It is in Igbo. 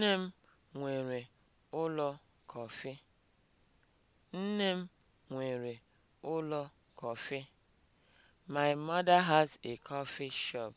Nne m nwere ụlọ kọfị. Nne My mother has a coffee shop.